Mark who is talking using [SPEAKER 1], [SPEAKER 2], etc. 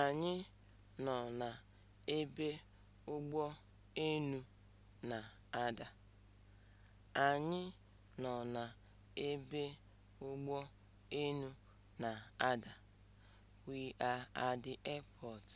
[SPEAKER 1] Anyị nọ na ebe ụgbọ enu na-ada. Anyị nọ We are at the
[SPEAKER 2] airport.